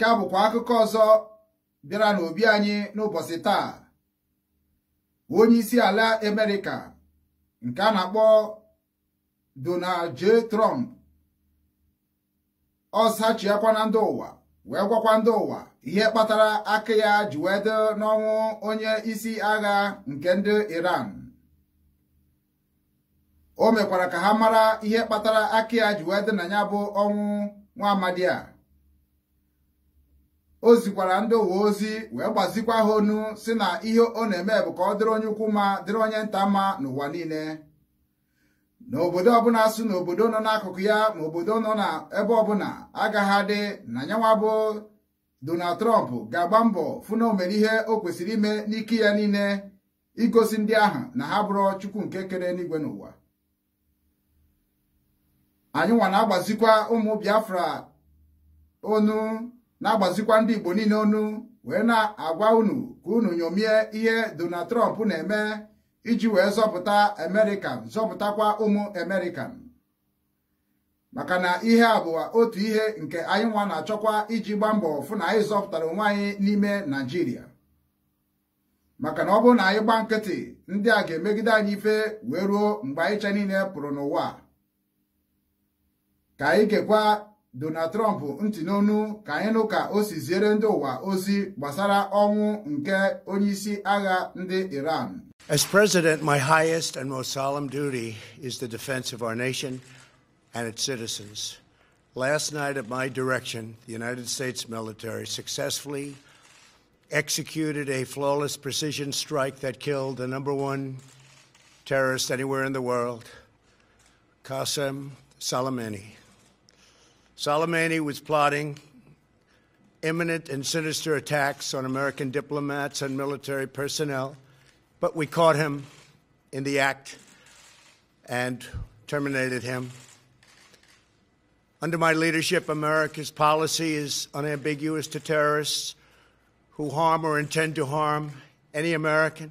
nke a bụkwa akụkọ ọzọ bịara n'obi anyị n'ụbọchị taa onye isi ala Amerịka nke a na-akpọ Donald J. Trump ọsachiakwa na ndị ụwa wee gwakwa ndị ụwa ihe kpatara aka ya ji wee dị n'ọnwụ onye isi agha nke ndị Iran o mekwara ka ha mara ihe kpatara aka ya ji wee dị na ya bụ ọnwụ nwa amadi a o zikwara ndị uwe ozi wee gbazikwa ha onu si na ihe ọ na-eme bụ ka ọ dịrị onye ukwu ma dịrị onye nta mma n'ụwa niile n'obodo ọbụla sụ n'obodo nọ n'akụkụ ya ma obodo nọ n'ebe ọbụla agaghị adị na nyanwa bụ Donald Trump ga-agba mbọ fụ na o mere ihe o kwesịrị ime n'ike ya niile igosi ndị ahụ na ha bụrụ Chukwu nke kere n'igwe n'ụwa anyị nwa na-agbazikwa ụmụ Biafra onu na-agbazikwa ndị Igbo niile ọnụ wee na-agwa unu ka unu nyomie ihe Donald Trump na-eme iji wee zọpụta American zọpụtakwa ụmụ Amerịkan. maka na ihe a bụ otu ihe nke anyị nwa na-achọkwa iji gbaa mbọ fụ na anyị zọpụtara onwe anyị n'ime Naijiria maka na ọ bụrụ na anyị gbaa nkịtị ndị a ga-emegide anyị ife wee ruo mgbe anyị cha niile pụrụ n'ụwa ka anyị gekwa Donald Trump ntị n'onu ka ka ndị ụwa ozi gbasara ọnwụ nke agha ndị Iran. As president, my highest and most solemn duty is the defense of our nation and its citizens. Last night, at my direction, the United States military successfully executed a flawless precision strike that killed the number one terrorist anywhere in the world, Qasem Soleimani. Soleimani was plotting imminent and sinister attacks on American diplomats and military personnel, but we caught him in the act and terminated him. Under my leadership, America's policy is unambiguous to terrorists who harm or intend to harm any American.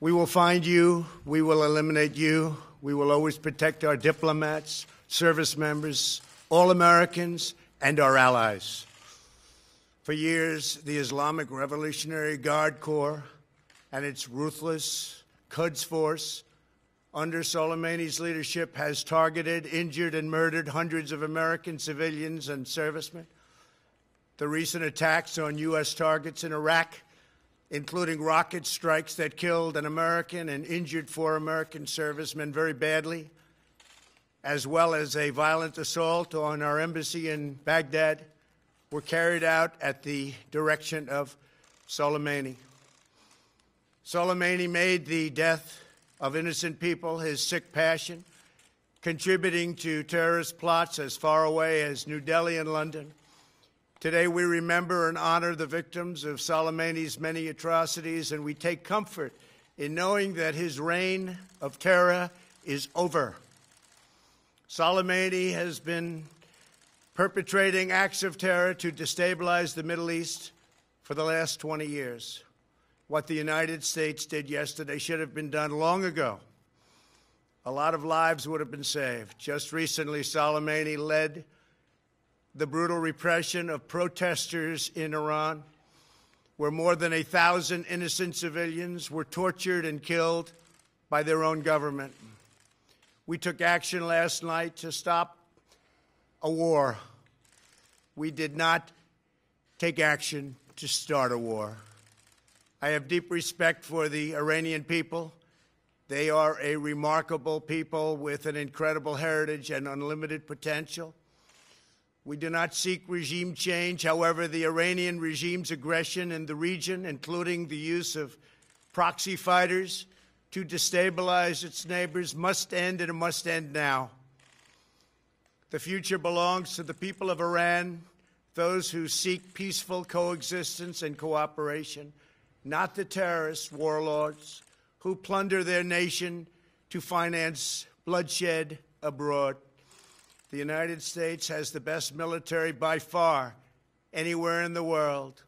We will find you, we will eliminate you, we will always protect our diplomats, service members, all Americans, and our allies. For years, the Islamic Revolutionary Guard Corps and its ruthless Quds Force under Soleimani's leadership has targeted, injured, and murdered hundreds of American civilians and servicemen. The recent attacks on U.S. targets in Iraq, including rocket strikes that killed an American and injured four American servicemen very badly, as well as a violent assault on our embassy in Baghdad, were carried out at the direction of Soleimani. Soleimani made the death of innocent people his sick passion, contributing to terrorist plots as far away as New Delhi and London. Today, we remember and honor the victims of Soleimani's many atrocities, and we take comfort in knowing that his reign of terror is over. Soleimani has been perpetrating acts of terror to destabilize the Middle East for the last 20 years. What the United States did yesterday should have been done long ago. A lot of lives would have been saved. Just recently, Soleimani led the brutal repression of protesters in Iran, where more than a thousand innocent civilians were tortured and killed by their own government. We took action last night to stop a war. We did not take action to start a war. I have deep respect for the Iranian people. They are a remarkable people with an incredible heritage and unlimited potential. We do not seek regime change. However, the Iranian regime's aggression in the region, including the use of proxy fighters, to destabilize its neighbors must end, and it must end now. The future belongs to the people of Iran, those who seek peaceful coexistence and cooperation, not the terrorist warlords who plunder their nation to finance bloodshed abroad. The United States has the best military by far anywhere in the world.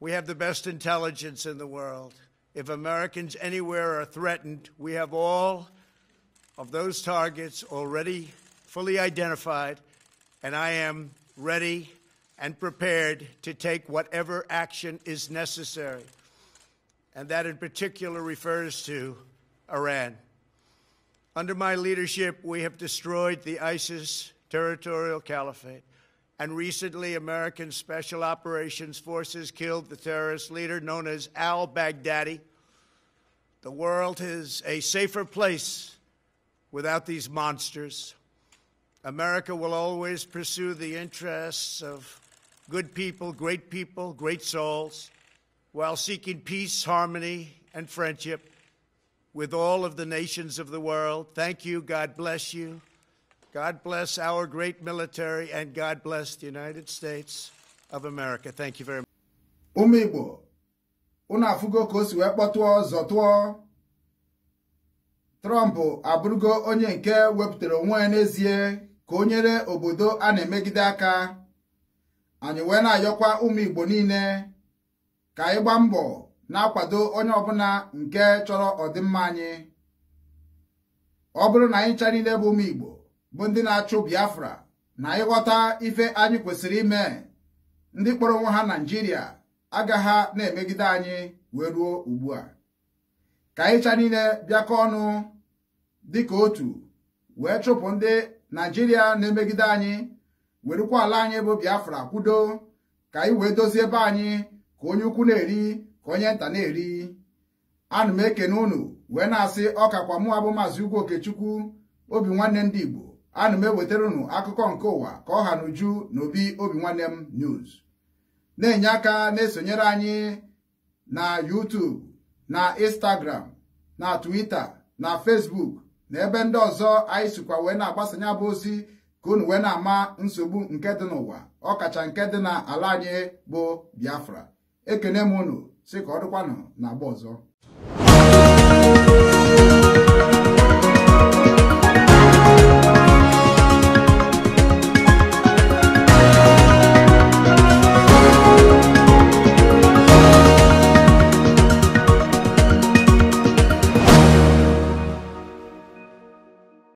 We have the best intelligence in the world. If Americans anywhere are threatened, we have all of those targets already fully identified, and I am ready and prepared to take whatever action is necessary. And that in particular refers to Iran. Under my leadership, we have destroyed the ISIS territorial caliphate and recently American Special Operations Forces killed the terrorist leader known as al Baghdadi. The world is a safer place without these monsters. America will always pursue the interests of good people, great people, great souls, while seeking peace, harmony, and friendship with all of the nations of the world. Thank you. God bless you. God bless our great military and God bless the United States of America. Thank you very much. Ụmụ Igbo, unu afụgo ka o si wee kpọtụọ zọtụọ Trump abụrụgo onye nke wepụtara onwe ya n'ezie ka o nyere obodo a na-emegide aka anyị wee na-ayọkwa ụmụ Igbo niile ka anyị gbaa mbọ na-akwado onye ọbụla nke chọrọ ọdịmma anyị ọ bụrụ na anyị ncha bụ ụmụ Igbo bụ ndị na-achụ Biafra na ịghọta ife anyị kwesịrị ime ndị kpọrọ onwe ha naijiria agagha na-emegide anyị wee ruo ugbu a ka ịcha niile bịakọ ọnụ dịka otu wee chụpụ ndị naijiria na-emegide anyị werukwa ala anyị bụ Biafra kwudo ka anyị wee dozie ebe anyị ka onye ukwu na-eri ka onye nta na-eri ana m ekene unu wee na-asị ọkakwa mụ abụ maazị Ugwu Okechukwu obi nwanne ndị Igbo ana m ewetara unu akụkọ nke ụwa ka ọ ha n'uju n'obi obi nwanne m news na-enye aka na-esonyere anyị na YouTube na Instagram na Twitter na fesbuk na ebe ndị ọzọ anyị sikwa wee na-agbasanye bụ ozi ka unu wee na-ama nsogbu nke dị n'ụwa ọkacha nke dị na ala anyị bụ Biafra ekene m unu si ka ọ dịkwanụ na agba ọzọ